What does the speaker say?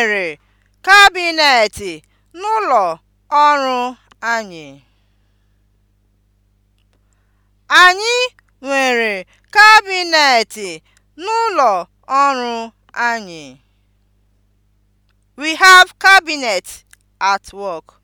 nwere kabinet n'ụlọ ọrụ anyị. Anyị nwere kabinet n'ụlọ ọrụ anyị. We have cabinet at work.